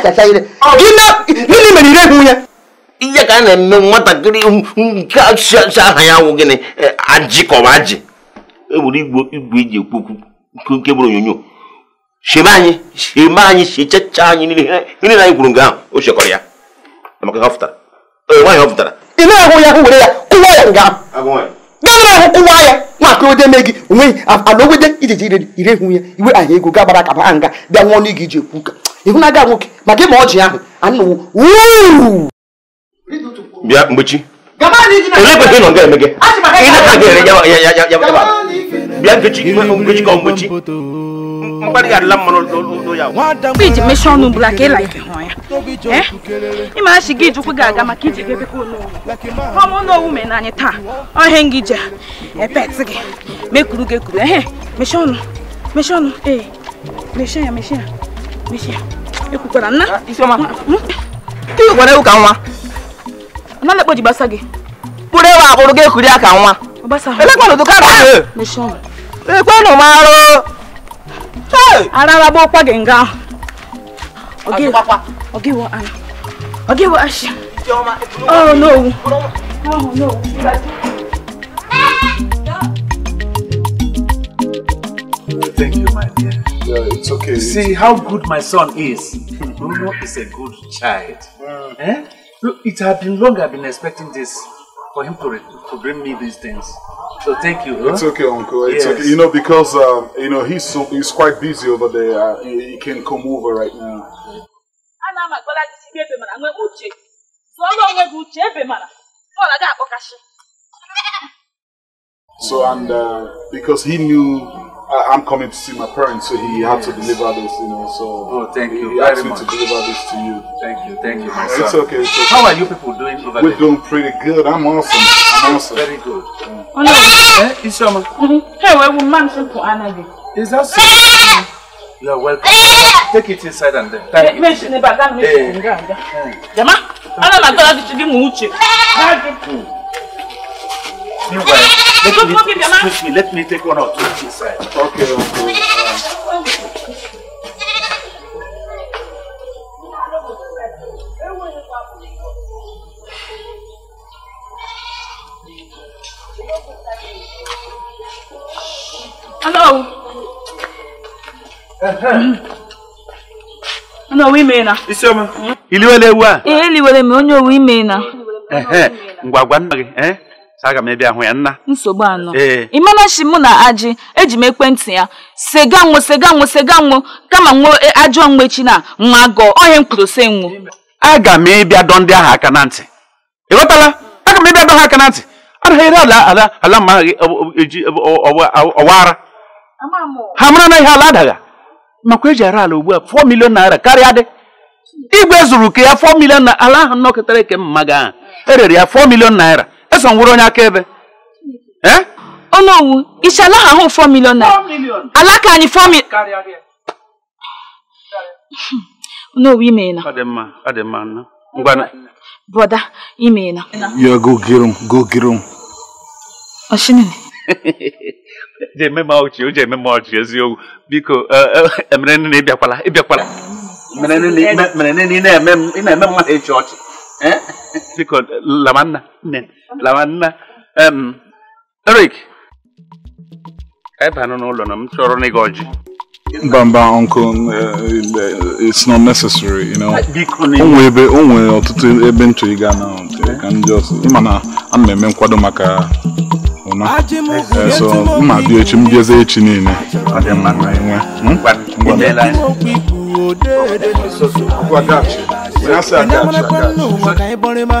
akacha ire gịnị mere ire bụ ya ihe eh, e, eh, e, ka a na-eme nwatakịrị nke aha ya nwụ gịnị ajịkọba ajị ewere igwe iji ekwu okwu nke bụrụ onyonyo sheme anyị sheme anyị shechacha anyị na anyị kwuru nga ahụ o shekọrọ ya maka ha nwaanyị ị na-ahụ ya were ya kụwa ya nga ahụ kụwa ya ode me gị onweghị ala ogwede ire ya iwe aha ego ga gbara baa nga bịa nwụọ n'ige iji ekwu ka. ịhụnaga nwoke ma gị ma ọjị ahụ anụwo bịa mgbechi olee kwesịrị ịnọ nga eme gị bịa mgbechi mgbechi ka mgbechi mkparị ya iji mechie ọnụ bụla ka ịla ike hụ ya ịma achị gị aga maka iji taa ọhịa e gị epet gị mekuru gị ehe mechie ọnụ mechie ee mechie ya ekwukwara nna iwekwara ewu ka nwa nna lekpoji gbasa gị bụrụ ewu abụrụ gị ekuri aka nwa elekwanụ ka na ekwenụ m arụ arara bụ ụkwa gị nga ahụ ọgịwọ ọgịwọ ashị ọrụ n'owu oh n'owu okay. See how good my son is. Bruno is a good child. Wow. Eh? it had been long I've been expecting this for him to, to bring me these things. So thank you. Huh? It's okay, Uncle. It's yes. okay. You know because um, you know he's so, he's quite busy over there. Uh, he, he can come over right now. So and uh, because he knew I, am coming to see my parents, so he yes. had to deliver this, you know. So oh, thank you. He very asked me much. to deliver this to you. Thank you, thank you, my son. It's okay. It's okay. How are you people doing over We're there? We're doing pretty good. I'm awesome. I'm awesome. Very good. Yeah. Oh no, eh? Isoma. Mm-hmm. Hey, we will mention for Anadi. Is that so? Eh. You are welcome. Take it inside and then. Thank eh. eh. hmm. you. Mention about that. Jama, I don't know. I thought I should give you much. Let me, me, let me take one or two Okay, Okay. Hello. Uh -huh. owu ime na. Isioma. Iliwele ewu a. Ee, eh, eliwele m onye owu ime na. Eh, eh. Ngwa gwa nna gị. aga m ebe ahụ ya nna nsogbu anọ imenachi mụ na Aji eji m ekwentị ya sega nwụ sega nwụ sega kama nwụ e, ajọ mgbechi na nwa gọ onye m kwuru se nwụ aga m ịbịa dọ ndị ahụ aka na ntị ịghọtala aga m ịbịa dọ ha aka na ntị anaghị ala ala ala ma e, e, eji ọwa ara ha mara na ihe ala adaga makwa eji ala ugbu a fọ milion naira karịa dị zuru ke ya fọ ala ahụ eke mma erere ya fọ naira Samson wụrụ onye akaebe ọnụ owu ishala ha hụ 4 million na alaka anyị 4 million n'owu imeela broda imeela ya go get him go get him oshinene jeme ma ọchị o jeme ma ọchị eziokwu biko emere nne na ịbịakwala ịbịakwala mere nne na ị na-eme mmadụ ịchị ọchị biko lamanna lamanna lamanna Eric anyị banụ ụlọ na m chọrọ uncle, uh, it's not necessary, you know. Onwe ebe ọtụtụ ebe ntụ ịga ga na ka ndị ọsọ ịma na na-eme nkwado maka ụna so mma bịa echi m echi niile Mama, kwanu maka ịbọrịma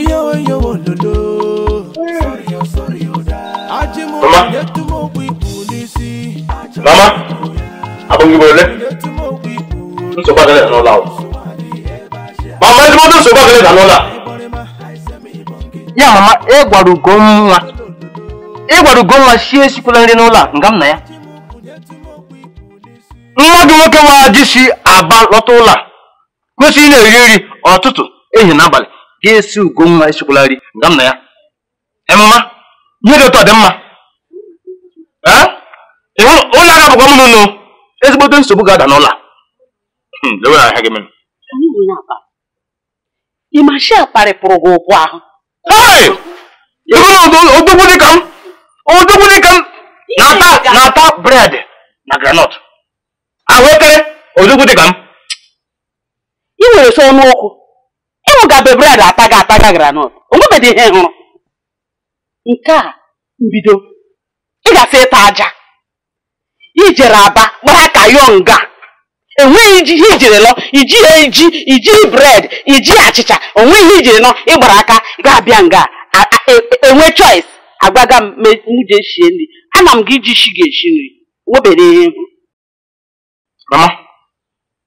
iyowo iyowo lolo ajimụ na-etum okwu ikwu mama abụghị m ole nsogbu agaghị anụla mama ndị mmadụ nsogbu ya mama ịgwara ugonwa ịgwara ugonwa sie esikwela nri n'ụlọ a nga m na ya Mmadụ nwoke wajị si Aba lọta ụlọ a kwesịrị ị na-eri nri ọtụtụ ehi na abalị ga-esi ugonwa esikwala nri nga m na ya emema ihe dị ụtọ dị mma ụlọ agha bụkwa mụnụ nụ ezigbote nsogbu ga-ada n'ụlọ hmm, ịmashia kparịpụrụ gị ụkwụ ahụ ịhụrụ odogwu dịka m odogwu dịka m na-ata bred na granọt ahụekere ozugwu ka m ị nwere so ọnụ ụkwụ, ịnwụ ga be ataga ataga n'otu, granọt onwebedị ihe hụrụ nke a mbido ị ga-asị ịta aja ijere aba gbara ka nga, enweghị iji ihe ijere lọ iji eji iji bred iji achịcha onweghị ihe ijere nọ ịgbara aka ga-abịa nga enwe e, e choice agwaga m mụje shie nri ana m gị iji shi ga-eshi nri nwebeghị ihe Mama,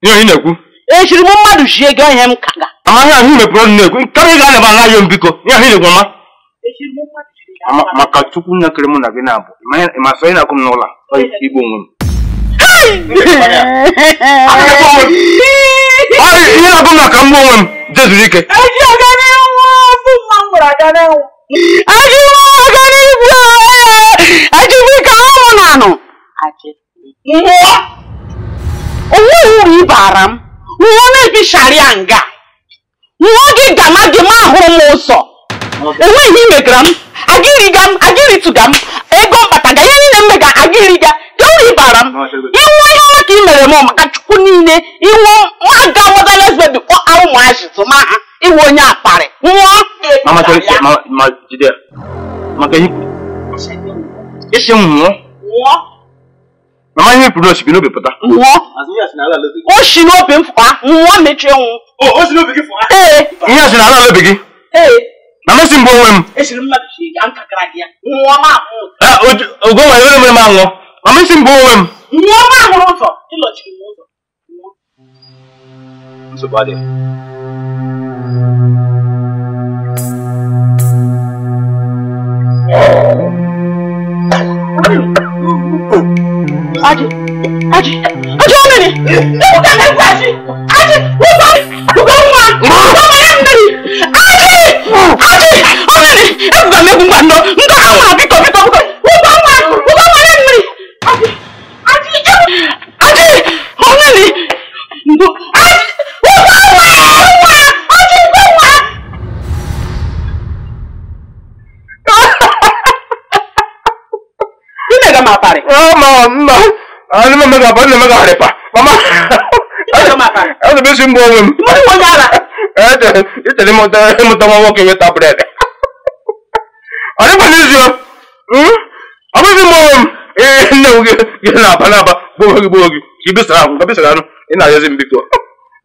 ihe onye na-ekwu? E m mmadụ chie gị ihe m kaga. Mama, ihe ahụ mepụrụ ọnụ na-ekwu, karịa ga anaba ala ya mbiko, ihe ahụ na mama. E maka Chukwu nne kere mụ na gị na-abụ, ma sọ ị na akwụ m n'ụlọ igbo onwe m. Ihe na m maka onwe m jezuru ike. E e anụ. onwe uru ịbara m nwụọ na-ebisharịa nga nwụọ gị gama gị ma ahụrụ m ụzọ enweghị imegara m agịrịga m agịrịtụga m ego mkpataga ihe niile mmega agịrịga gị uru ịbara m ịnwụ ihe ọma ka ị mere m maka chukwu niile ịnwụ aga mọda lesbebi kpọ ahụ mụazịtụ ma ha ịnwụ onye akparị nwụọ maka isi m nwụọ mama ihe furu osi bi n'obi pụta nwụọ o si n'obi m fụa nwụọ mechie nwụ o si n'obi gị fụa ee ihe si n'ala n'obi gị ee na mmasị mbụ onwe m ogo nwere onye mere m anwụọ na mmasị mbụ onwe m nwụọ ma ahụrụ ụzọ ịlọchiri m ụzọ nsogbu adịghị Oh. oh Aji, Aji, Aji wọ́n mẹ́rin, ewu ká mẹ́rin kú Aji, Aji, wọ́n bá gbogbo ń wá, wọ́n bá yẹn mẹ́rin, Aji, Aji, wọ́n mẹ́rin, ewu ká mẹ́rin wá nọ, ntọ́ ká wọ́n àbí tọ̀bí tọ̀bí tọ̀bí, wọ́n bá wá, wọ́n bá wá yẹn mẹ́rin, Aji, Aji, ewu, Aji, wọ́n mẹ́rin, ntọ́, Aji, wọ́n bá wá, wọ́n wá, Aji, wọ́n wá. Ní mẹ́ga máa parí. Ọmọ, ọmọ. Ah, ne mama gaba, Não mama gaba pa. Mama. Ah, ne Não mbo wem. Mo wo nyala. Eh, de, ite le monta, le monta mo não we ta bread. Ale pa nizio. Hmm? Abi bisi mbo wem. Eh, ne wo ge, ge na pa na pa. Bo wogi, bo wogi. Ki bi sara, ka bi sara no. Ina yezi mbiko.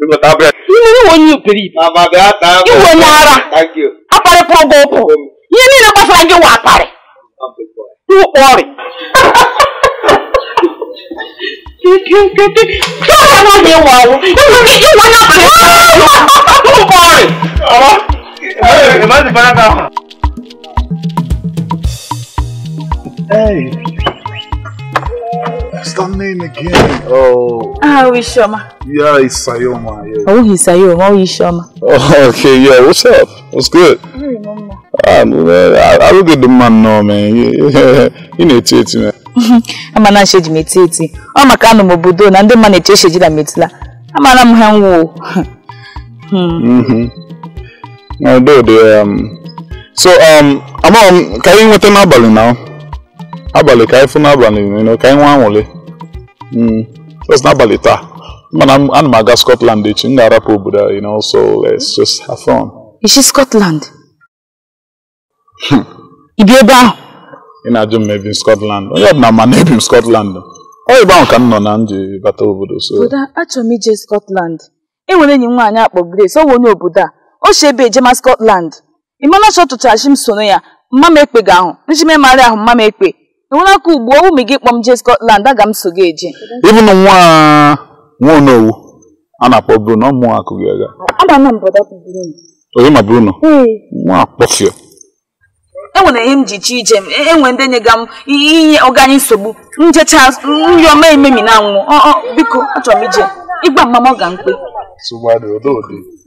não ta bread. Ni ni wo nyu kiri. Mama ga ta. Iwo mwara. Thank you. Apare pro gopo. Ye ni na gbasara nge wa apare. Iwo ori. tí ó wà náà lè wà o ìwọ ní ìwọ náà bẹ̀rẹ̀ sí i wà ó ń kọ́ rẹ̀. ọ̀rọ̀ ìmọ̀lẹ́sì fara kan. Hey, that's the name again. Oh. Ah, Ishoma. Yeah, it's Sayoma. Yeah. Oh, he's Sayoma. Oh, Ishoma. Oh, okay, yeah. What's up? What's good? I remember. Ah, man, I, I look at the man now, man. you know, it's it, man. amana nsheji meti eti ọ maka anụ m obodo na ndị mma na-eche eshejila metila amara m ha nwụọ hmm. hmm. um, so um amaghị m ka anyị nweta n'abalị na abalị ka anyị fụ n'abalị ka anyị nwa anwụle hmm. just n'abalị taa mana ana m aga Scotland echi m ga-arapụ obodo you know so let's just have fun. Ishi Scotland? Ibi ebe ahụ? ị na-ajụ m ebi m Scotland onye ọbụla ma na ebi m Scotland ọ ebe ahụ ka m nọ na m bata obodo so achọrọ m ije Scotland e nwere enyi m nwaanyị akpọ Grace ọ bụ onye obodo a o si ebe ejema Scotland ị mana chọ tụcharachi m sono ya mma m ekpe ga ahụ nji m emarị ahụ mma m ekpe enwere aka ugbu ụmụ gị kpọ m jee Scotland aga m so gị eje ịbụ na nwa onowu a na-akpọ Bruno ọ mụọ akụ gị aga onye ma Bruno nwa akpọfio enwere ihe m ji chi ije m enwe e ndị nyega m inye ọganye nsogbu njecha nri ọma ememi na anwụ biko achọrọ m ije ịgba mama ọ ga mkpe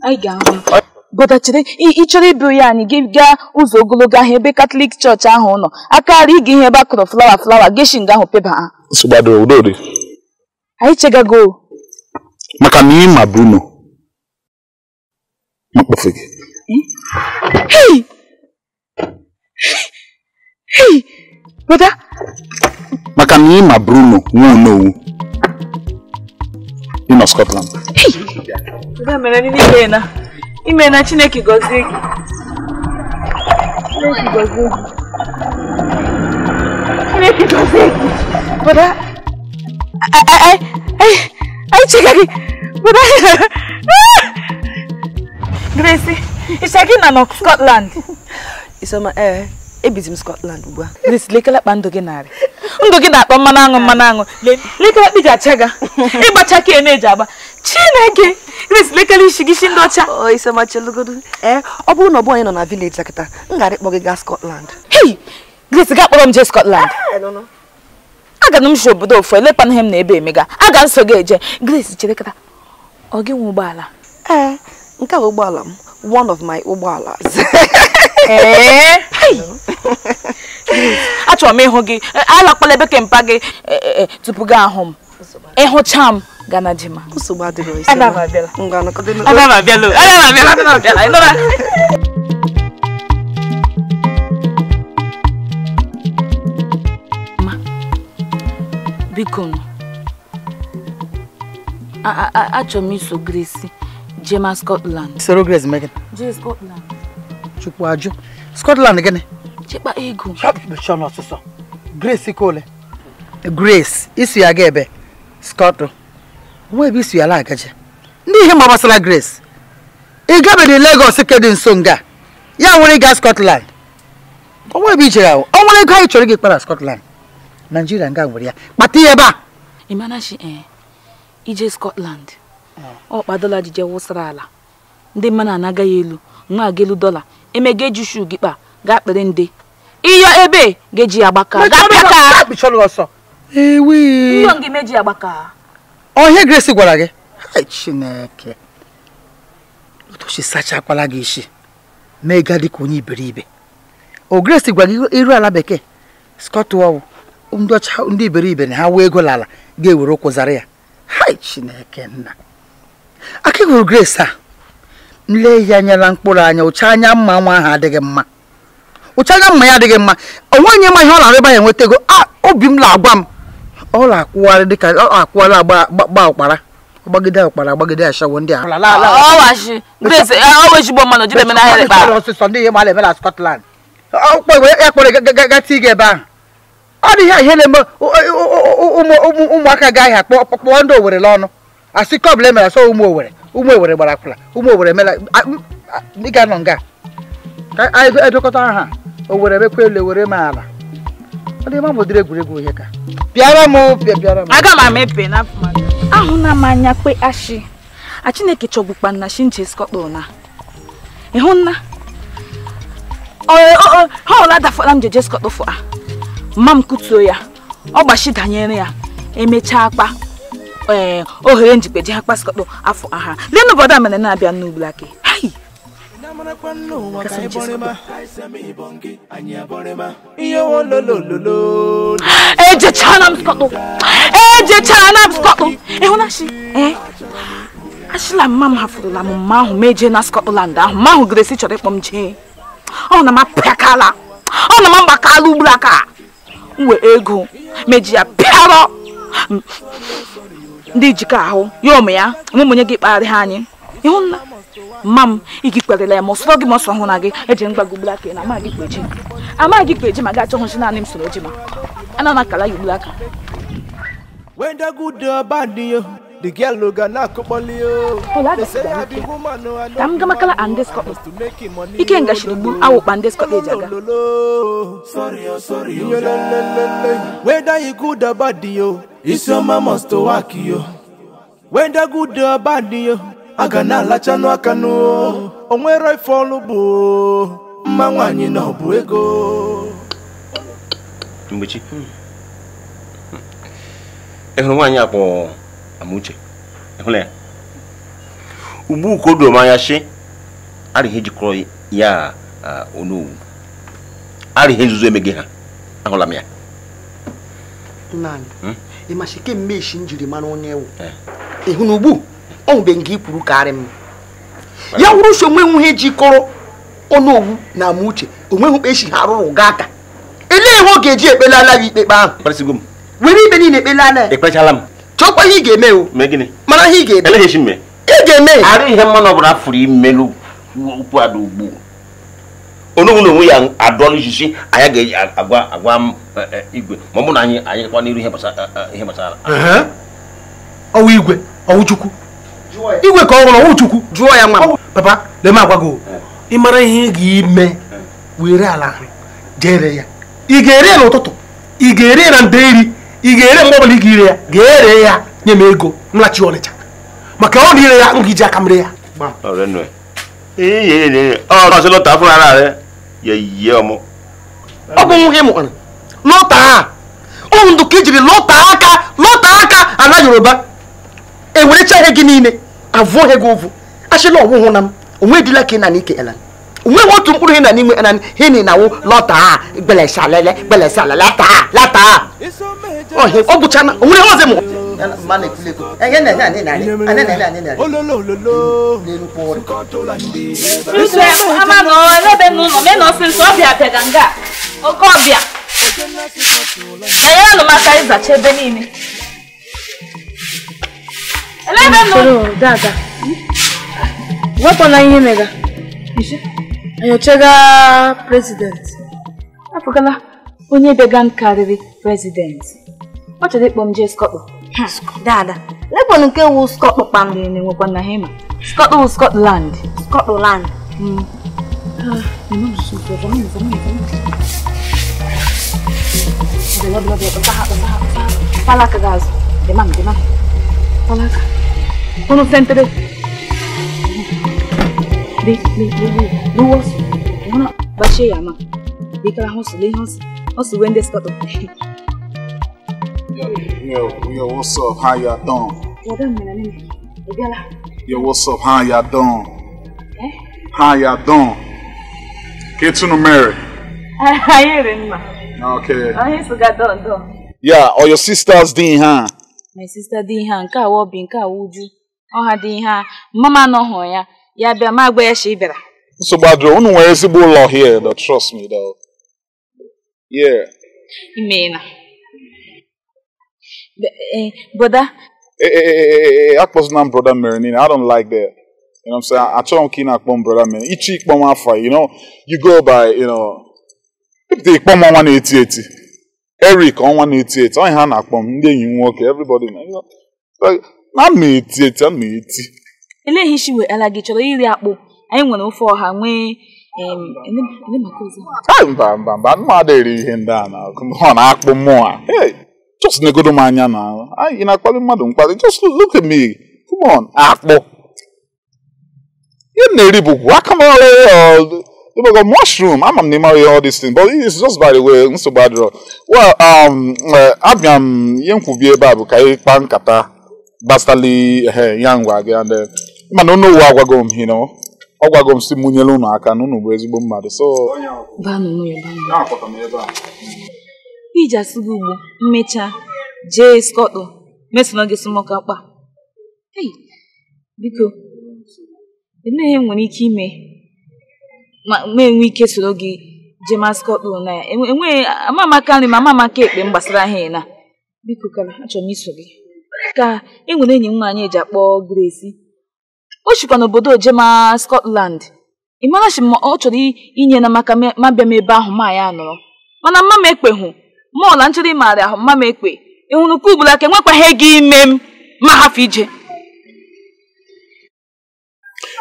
anyị ga-ahụ ịchọrọ ịbụ ya anyị gị gaa ụzọ ogologo ahụ ebe katọlik chọọchị ahụ nọ akarị ịga ihe ebe a kụrụ flawa flawa geshin ahụ peba ha anyị chegago maka na ịma bruno gị. Hey, brother. Maka na ị ma Bruno nwa no. Ị nọ Scotland. Brother mere ndị ni na ime na Chineke gọzie gị. Chineke gọzie gị. Chineke gọzie gị. Brother. I, I, I, I check again. Brother. Gracie, ịcha gị na Scotland. Isoma ee eh, ebizi Scotland ugbu a lekele lekọlakpa ndụ gị narị ndụ gị na-akpọ mmanụ aṅụ mmanụ aṅụ lekọlakpa iji achaga ịgbacha ka na-eji agba Chineke Grace lekele isi gị isi ndị ọcha oh, Isoma chelugodo ee eh, ọ bụrụ na ọ bụ onye nọ na village kịta m gara ịkpọ gị gaa Scotland hei Grace gaa kpọrọ m jee Scotland ah, aga m si obodo ofu elepanaghe m na ebe emega aga nso gị eje gris chere kata ọ gị nwe ụgbọala ee eh, nke a ụgbọala m one of my ụgbọalas Eh? achọrọ m ịhụ gị eh, alakpala ebe kempa gị eh, tupu gị ahụ m ịhụcha m gana di ma biko achọrọ m iso Grace jee ma Scotland soro Grace mee gị Scotland chukwu ajụ Scotland gịnị chekpa ego ọsụsọ Grace Ikole Grace isu ya ga ebe Scotland nwa ebe isu ya la agaje ndị ihe ma gbasara Grace ị gabedị Lagos kedị nso nga ya nwere ịga Scotland ọnwa ebe ijere ahụ ọ nwere ego anyị chọrọ gị kpara Scotland Nigeria nga nwere ya kpata ya ebe a ịmanachi ee eh, ije Scotland ah. ọ kpadola jije wụsara ala ndị mmanụ anaga ya elu nwa aga elu dọla eme ga-eji shu gị kpa gaa kpere ndị ịyọ ebe ga-eji ya gbaka ọhịa gresi gwara gị chineke otochi sachakwala gị isi mee ga dịka onye iberibe o gresi gwara gị iru ala bekee skọtwọl ndị ọcha ndị iberibe na ha wee ego n'ala ga-ewere ụkwụ zara ya hai chineke nna aka ịhụrụ gresi a nle ya nyela mkpụrụ anya ụcha anya mma nwa ahụ adịghị mma ụcha anya mma ya adịghị mma onwe onye ma ihe ọ na-arịba ya nwetago ah, obi m na-agwa m ọ na-akwụgharị dịka ọ na-akwụgharị agba ọkpara agbagide ọkpara agbagide ashawo ndị ọsịsọ ndị ihe mara eme na Scotland ya kpọrọ gata ige ebe ahụ ọ dị ihe ihe na-eme ụmụaka gaghị akpọ kpọọ ndị Owere n'ọnụ asị kọbụla emere asọ ụmụ Owere ụmụ ewere gbara akwụla ụmụ owere mela ịga nọ nga ka anyị edokọta aha owere mekwa elu ewere m ala bụ dịrị egwuregwu ihe ka bịara m bịara m aga m amepe ahụna m anya kwe ashi a chineke chọgbukpa na shinje skọtọ na ịhụ nna ha ọla dafọla m jeje skọtọ fụ a mma m kutuo ya ọ gbachi danyere ya emechaa akpa ohere njikpe ji ha kpasịkọtọ afọ aha lee n'obodo a mere na-abịa n'ugwu aka ejechana m skọtụ ejechana m skọtụ ịhụnachi achịla mma m hafụrụla m mma ahụ mejee na Scotland ahụ mma ahụ gresi chọrọ ịkpọ m jee ọ oh, na m apịakala ọ oh, na m agbakala ugburu aka wee ego meji ya pịarọ ndị ijikọ ahụ ya ụmụ ya mụmụ gị kpagharị ha anyị ịhụ nna mma m igi kperela ya ma ọsọ gị ma ọsọ hụ na gị eji mgbagogbula aka na amaghị kpeji amaghị kpeji ma gị achọ hụchi naanị m soro ji ma ana na akala ya ugbula aka The girl no gonna you. Oh, They say ya I be woman no I know. Tam gama kala andes ko. Ike nga shiribun awo bandes ko ejaga. Sorry oh, oh, yo, sorry yo. Whether you good or bad yo, it's your mama to work yo. Whether good or bad yo, aga na alacha no aka no. Oh. Onwere ifolu bu. Mma nwanyi na obu ego. Mgbechi. Ehuru hmm. hmm. nwaanyị akpọ Amuche ịhụla ya ugbu ka o doro m anya shi arịghị e jikọrọ ya onowu arịghị nzuzo emeghị ha ahụla m ya nna hmm? e m ịmasị kemgbe isi njiri mara onye ewu eh. ịhụ na ugbu ọ nwụbeghị nke ikwuru karị m ya wụrụ so onwe nwuhe jikọrọ ọnụowu na Amuche onweghị esi e ha rụrụ gaa aka elee ihe ọ ga-eji ekpelala ya ikpe ikpe ahụ were ikpe niile ekpelala ya ekpechala m chọkwa ihe ị ga-eme o mana ihe ị ga-eme ị ga-eme arị ihe mmanụ ọbụla fụrụ imelu ukwu ada ugbu onugbu na onwe ya adọla ijisi anyị ga-agwa agwa e, e, igwe ma ọ bụ na anyị anyị kwa n'iru ihe gbasara e, ọwụ igwe ọwụ chukwu igwe ka ọ hụrụ ọwụ chukwu jụọ ya nwa papa lee m agwa gị ị mara ihe ị ga-eme were ala ahụ jere ya ị ga-eri ya n'ụtụtụ ị ga-eri ya na nde iri ị ga-ere mgbe ọbụla ị ga-ire ya ga-ere ya nye m ego mlachi ọnịcha maka ọ na-ire ya m ga-eji aka m ree ya ọ bụ nwa gị mụkwara lọta a ụmụ ndụ ka ijiri e lọta aka lọta aka ala yoruba ewerecha ihe gị niile avụọ ihe gị ụvụ achịla ọwụhụ na m onwe dịla ka ị na ike elan wọn wọn tún kúrò hinna nímú ẹnani hinni náà wọn lọta gbẹlẹsà lẹlẹ gbẹlẹsà lẹ lata lata ọhìn ọgùchá náà òun ni wọn ṣe mọ. mana ekule ko ẹ eh, yẹn nana ne nari ana nana ne nari. ololololo nsu ẹ ama nọ ẹlẹbẹ nù nọ mẹ nọ sí nsọ ọbịa bịaganga oke ọbịa enyere nụ maka ịzacha ebe niile. ẹlẹbẹ nù. wepụ na ihe mega. enyochago agha prezidenti apụgala onye bịaga m kamu prezidenti ọ chọrọ ịkpọ m jee skọkpọ dada lebọn nke wu skọkpọ kpam na-enwekwa na hema skọkpọ wu skọtland skọtland palaka gazo demam demam palaka unu fentere me me me no wasu muna bashe ya ma bi kala hosu le hosu hosu when they start Yo, yo, what's up? How y'all doing? Yo, what's up? How y'all doing? Eh? How y'all doing? Get to the married. I hear him. Okay. Oh, he's got done, done. Yeah, or your sister's Dean, huh? My sister Dean, huh? Nka wobi, nka wuju. Oh, ha Dean, huh? Mama no ho ya. ya bịa ma agwa ya shi bịara nsogbu adịrọ unu nwere ezigbo ụlọ here though, trust me though. yeah imeela e, broda e, e, akpọzina m broda mere niile i don't like that you know i'm saying m ka ị na-akpọ m ichi m afọ you know you go by you know ịpụta m ọnwa na-eti eti ha na-akpọ ndị enyi nwoke everybody na eleghị isi ala gị chọrọ iri akpụ anyị nwere ofe ọha nwee mba mba mba mmadụ eri ihe ndị a ọ na-akpụ mmụọ a just negodo m anya na ị na-akpali mmadụ mkpali just look at me come on akpụ ihe m na-eri bụ guacamole mushroom, all but just by the way, Well, um, eh, abịa m ihe ebe a bụ ka ị nkata eh, ya ngwa mana unu ụwa agwago m you ọ gwago m si m nyere unu aka na unu bụ ezigbo mmadụ so iji asịgo ugbo mmecha, jee skọtụ mesona gị smọka kpa biko emeghị nwere ike ime ma enwe ike soro gị jee maskọtụ na ya enweghị amamaka nri ma amamaka ekpe m gbasara ha na biko kara achọrọ m iso gị ka e enyi nwaanyị eji akpọ Grace o chikwa n'obodo ojema Scotland ị marachi ma ọ chọrọ inye na maka mabịa m ebe ahụ ma ya mana mma m ekpe hụ mọọ na nchọrọ ịmara ahụ mma m ekpe hụrụ nke ugboro aka enwekwaghị gị ime m ma hafụ ije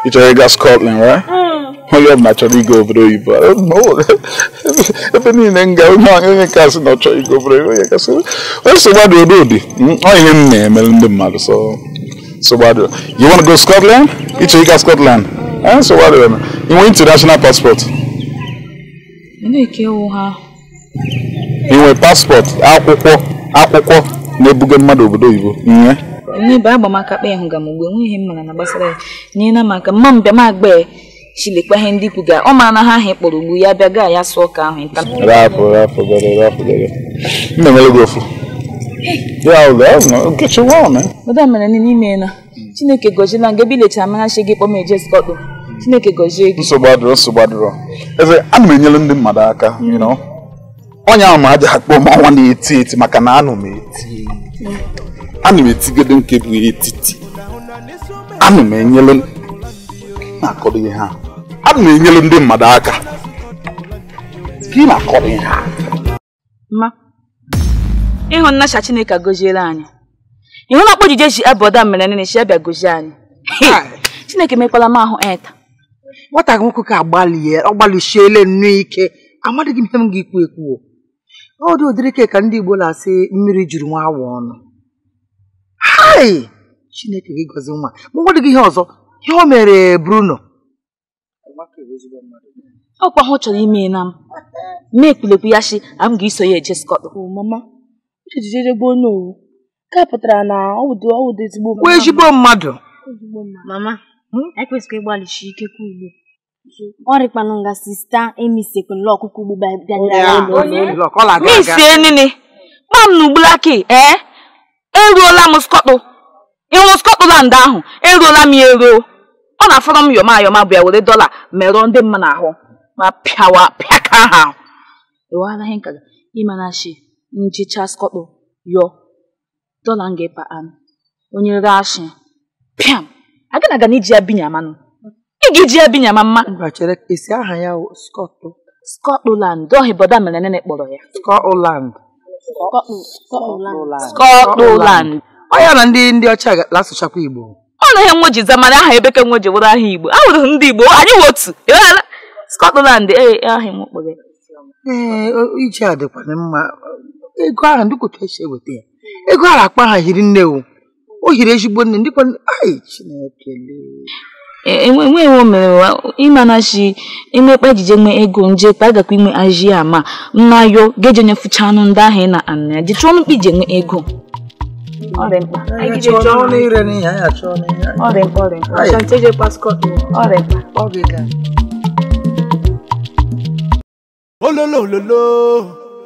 ị chọrọ ịga Scotland right? Hmm. onye ọbụla chọrọ ịga obodo oyibo ebe niile m nga onye kasị na ọ chọrọ ịga obodo oyibo onye kasị o so gbada ododi ọ ihe m na-emere ndị mmadụ so so what do you want to go to Scotland? Ịchọrọ ịga Scotland? Eh, so what do you international passport? akwụkwọ akwụkwọ na-ebuga mmadụ obodo oyibo ihe n'ebe agbamakakpa ya hụga m ugbo enweghị mara na gbasara ya nye na maka mma mbịa agba ya ndị kwuga ọ ma na ha ahụ ugbu ya bịa ya sụọ ka ahụ nta gị ya ụlọ madam mere niile ime na chineke gọziela nga ebe ilechara marachi gị kpọ m eje skọtụ chineke gọzie gị nsogbu adịrọ nsogbu adịrọ eze a na m enyere ndị mmadụ aka onye ahụ ma aja ha kpọọ m ọnwa na-eti eti maka na anụ m eti anụ m etigodo nke bụ etiti anụ m enyere na-akọrọ ihe ha anụ m enyere ndị mmadụ aka ka ị na-akọrọ ihe ha ịhụ nnacha chineke goziere anyị ịhụ na ọkpọjije ji abọda mere nene chi abịa gozie anyị chineke mekwala m ahụ eta nwata gị nwoke ka agbalie ọ gbalịsiele nnu ike amadịghị m ihe m ga-ekwu ekwu o dị ụdịrị ka ndị igbo na-asị mmiri juru nwa awa ọnụ hai chineke gị gọzi nwa ma dị gị ihe ọzọ ihe o mere bruno ọkwa ha chọrọ ime na m mee ekpulekwu ya shi a m ga-eso ya eje skọt Uchechi ezigbo onye owu nke pụtara na ọ wụdị ezigbo mmadụ. ezigbo mmadụ. Mama, ekwesịghị hmm? ịgbalịsi ike ka ugbo. Ọ rịkwanụ nga sista emisekwala ọkụkọ ugbo misie nini ma m na ugbulaki ee eruola m skọtụ ịhụ skọtland ahụ eruola m ya eruo ọ na-afọrọ m yọma yọma bịa were dọla merụọ ndị mma n'ahụ ma pịawa pịaka ha ịmana chi njichaskoɗo yo dolanghe pa'an onye rashi piam agana gana iji ya binyamanu ị ga-eji ya binyama mma esi aha ya skọtụ Scotland ọhị bọda mere nene kpọrọ ya Scotland Scotland ọ na ndị ndị ọcha na-asụchakwa Igbo ọ na ihe nwoji zamara aha ebeke nwoji wụrụ aha Igbo ahụrụ ndị Igbo anyị wụ otu ịghara Scotland ee e, ahị m kpọrọ ee iji a dịkwana mma ego ahụ ndị kwụta esi eweta ya ego ahụ akpa ha hiri nne o o hiri ezigbo nne ndị kwana ai chineke enweghị e, e, omerewa ịmanachi imekpa ejije nwe ego nje kpa agakwa inwe aji ma nnayo geje onye fụcha anụ ndị ahụ ị na anụ ya ji ọnụ mkpa iji enwe ego e ololo ololo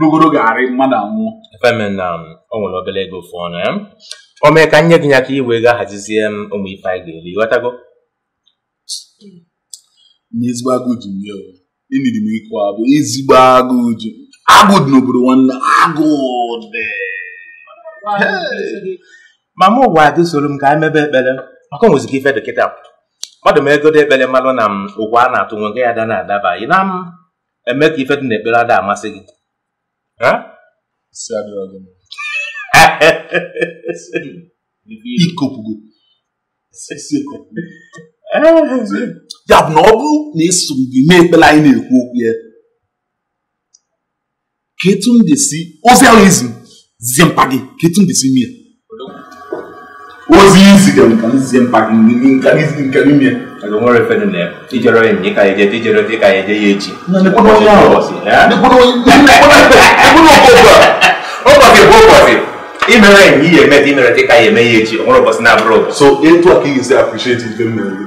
rugoro ga-arị mmadụ anwụọ efemen na um, o nwere obere ego fụ ọnụ ya o mee ka nye gị ya ka iwe ga hazizie m ụmụ ife anyị ga-eri ghọtago n'ezigbo agụụ ji m emiri m ịkụ abụ ezigbo agụụ ji agụ dị n'obodo nwanne agụụ dị ma mụ ụwa gị soro m ka anyị mebe ekpere maka o nwezika ife dị kịta mmadụ m ego dị ekpere mmadụ na m um, a na-atụ nwe nke ya da na-adaba ị na m eme ka ifetu na ekpere ada amasị gị ya bụ na ọ bụrụ na esoro gị mee ekpere anyị na-ekwu okwu ya ketu etu m desi ozi ahụ izi zie mpa gị ka etu m desi mie ozi izi ka m zie mpa gị nka n'ime Ẹ̀dùnmọ́ rẹ̀ fẹ́ni lẹ̀ tíjọrọ ẹ̀yìn ká ẹ̀jẹ̀ tíjọrọ tí ká ẹ̀jẹ̀ yé jì. Nígbódò yà ọ̀ nígbódò nígbódò gbogbo ọ̀bọ̀sì gbogboọ̀sì ìmẹ̀rẹ̀ yìí yẹ mẹ́tì ìmẹ̀rẹ̀ tí ká yẹ mẹ́ yé jì ọ̀mọ̀rọ̀ bọ̀sì náà bọ̀rọ̀. So ètò àkíyè sí appreciate ìfẹ́ mẹ́rin.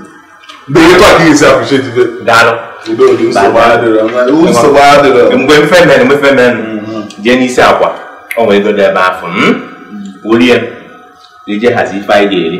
Bẹ́ẹ̀ ètò àkíyè sí appreciate ìfẹ́. Dáná. Ìbẹ́ òde ń sọ wáyà dẹ̀rẹ̀ ń sọ wáyà dẹ̀rẹ̀. Mgbe mfe mẹ́rin mfe mẹ́rin mm, mm, mm. jẹ́ n'isi àkwa ọ̀nwere dọ̀dọ̀ ebe afọ orí ẹ̀ lè jẹ́ hazi ife anyị ga-eri.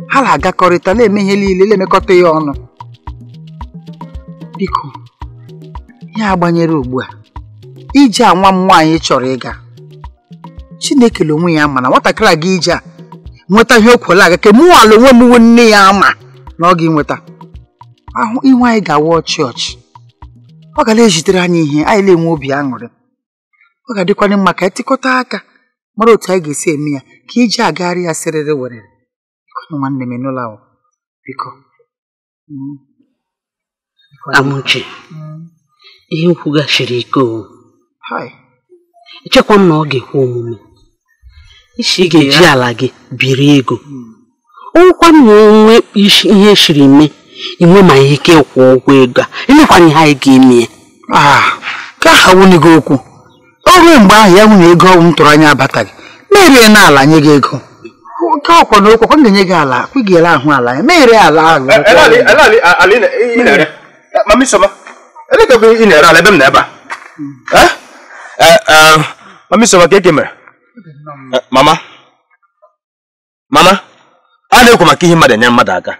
ha na-agakọrịta na-eme ihe niile na-emekọta ya ọnụ biko ya gbanyere ugbu a ije a nwa m nwaanyị chọrọ ịga Chineke onwe ya ma na nwatakịrị a ga ije a nweta ihe o aga ka mụ ala onwe m nne ya ama na ọ ga nweta ahụ ihu anyị ga awa ọchị ọchị ọ ga na-ejitere anyị ihe anyị na-enwe obi aṅụrị ọ ga-adịkwanye mma ka e anyị aka mara otu anyị ga-esi eme ya ka ije agagharị ya sịrịrị werere nwanne m enola biko mm. amuche mm. ihe nkwughachiri ike owu echekwa m na ọ ga-ekwe omume ị ga-eji ala gị biri ego mm. ọnwụkwa m na onwe ihe shiri mee inwe ma ihe ike kwụọ ụgwọ ego a emekwanye ha ego ime ya ah, ka ha wunye gị okwu ọ ruo mgbe ahụ ya nwunye ego ọnwụ m tụrụ anya abataghị merie na ala nye gị ego ka akwa na okwa m ga enye gị ala kwụ gị ele ahụ ala e ya meghere ala ahụ ị e, hmm. na-ere ala ebe m na hmm. ebe eh? eh, a eh, mamisoma ka eke mere hmm. mama mama a na-ekwu maka ihe mmadụ enye mmadụ aka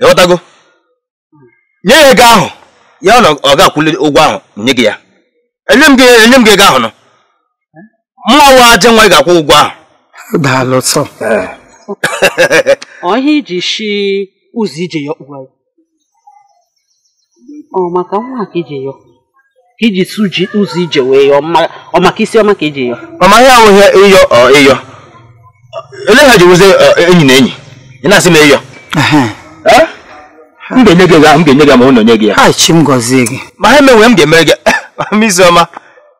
ịghọtago nye ya ego ahụ ya na ọ ga-akwụli ụgwọ ahụ nye gị ya enye m gị ego ahụ nọ mmanwụ aja nwa ị ga-akwụ ụgwọ ahụ daalụ sọ ọ ihe iji shi ụzọ ije ya ọkpụwa ọ maka nwa ka ije ya iji su ji ụzọ ije wee yọ ọ maka isi ọma ka ije yọ ọ maghị ahụghị ịyọ ọ ịyọ ele ha ji wụzi enyi na enyi ị na-asị m ịyọ m ga-enye gị ya m ga-enye gị ma ọ nye gị ya ha chi m gọzie gị ma ha emenwe m ga-emere gị m isi ọma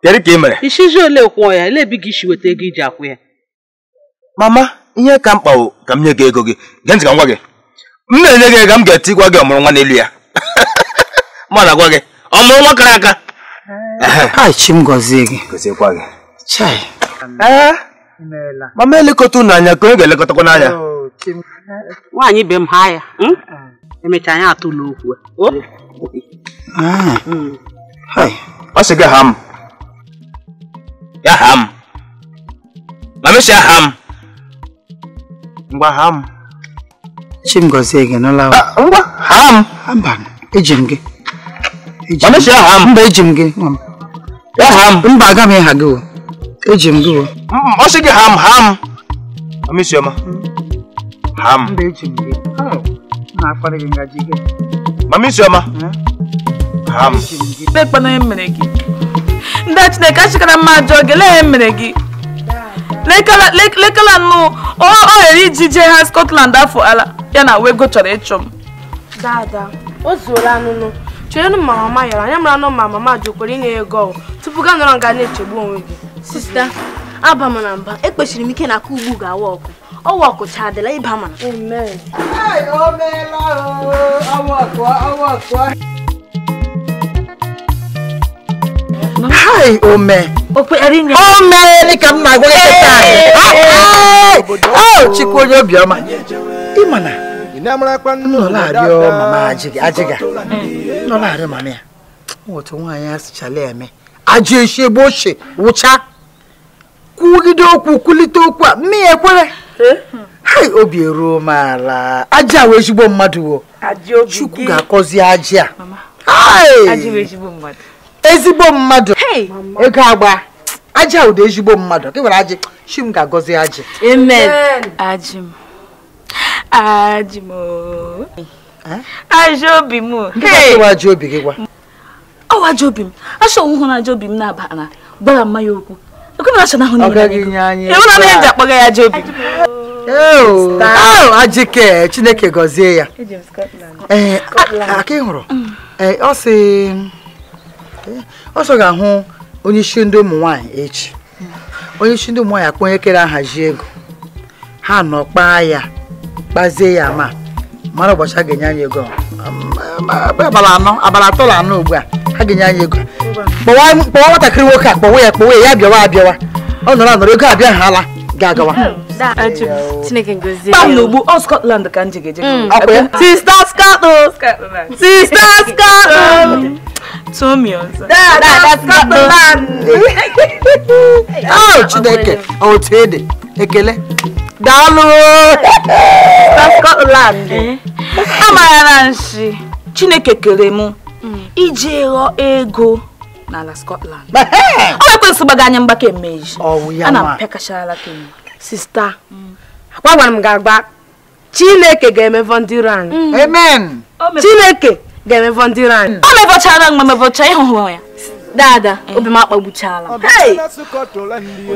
kedu ka ị mere ishizi ole kwụọ ya ele ebi gị ishi weta ego iji akwụ ya mama ihe ka mkpa bụ ka m nye gị ego gị gee ntị ka m gwa gị m na-enye gị ego m ga-eti gwa gị ọmụrụ nwa n'elu ya ma na gwa gị ọmụrụ nwa kara aka mama elekọta unu anya ka onye ga-elekọtakwa n'anya nwaanyị be m ha ya hmm? emecha anyị atụla okwu e. ah. hmm. ọ sị gị ha m ya ha m ma mesia aha m ngwa ha m Chimgozie gị n'ụlọ nụla ngwa ham! m mba eji m gị mba eji m gị mba aga m ịha gị eji m gị mm, ọ sị gị ham! m ha m amisioma ha m mba eji m gị oh, na-akparị gị ngaji gị mamisioma ha m ndị chineke achịkara mma ajọ gị lee mere gị lekala nụ ọ ghere iji jee ha Scotland afọ ala ya na wego chọrọ ịchụ m dada o zuola anụnụ chere ma mama yara anya mara nụ ma mama jụkwara inye ya ego tupu gaa nọrọ nga na-echegbu onwe gị sista aba mba ekpechiri m ike na aka ugbu ga-awa ọkụ ọwa ọkụ cha adịla ịba mana hai ome o meela ka m na-agwa kịta chukwu onye obiọma ịma na nnọlarịọ mama ajịga nnọlarịọ mm. mama ya otu nwaanyị asịchala eme aje eshi bo se wụcha kwugide oku kulite oku a mme ya ekwere eh? hai obi eruo m ala aja wee ezigbo mmadu wo chukwu ga-akọzi aja a ezigbo mmadụ ego agba aja ụda ezigbo mmadụ gị nwere ajị chi m ga-agọzi ajị m ajị ajọ obi m obi gị gwa ọwa ajọ obi m achọ nwụhụ na ajọ obi m na gbara ya ajọ oh, oh, ajike chineke gọzie ya eh, mm. eh, ọ sị ọsọ ga-ahụ onye isi ndị ụmụ nwaanyị echi onye isi ndị ụmụ nwaanyị akpọ onye kere ahazi ego ha nọ kpaa ya kpazie ya ma mara ụbọchị a ga-enye anyị ego um, abalị anọ abalị atọ na anọ ugbu a ha ga-enye anyị ego kpọwa nwatakịrị nwoke a kpọwa ya kpọwa ya ya bịawa abịawa ọ nọrọ anọrọ ego abịa ha ala ga-agawa Uh, chineke gozie ya n'ugbu Scotland ka m ji sista Scotland sista Scotland um, Tommy Scotland ọ chineke otu ekele Scotland eh? nshi chineke kere m mm. iji ghọ ego n'ala Scotland o ekwesị anya mgbaka oh, ana m sista akwa gwara m ga-agba chineke ga eme ndị iro anyị amen chineke ga eme ndị iro anyị ọ mevọchara mgbe mevọcha ịhụhụ ya dada obi m akpagbuchala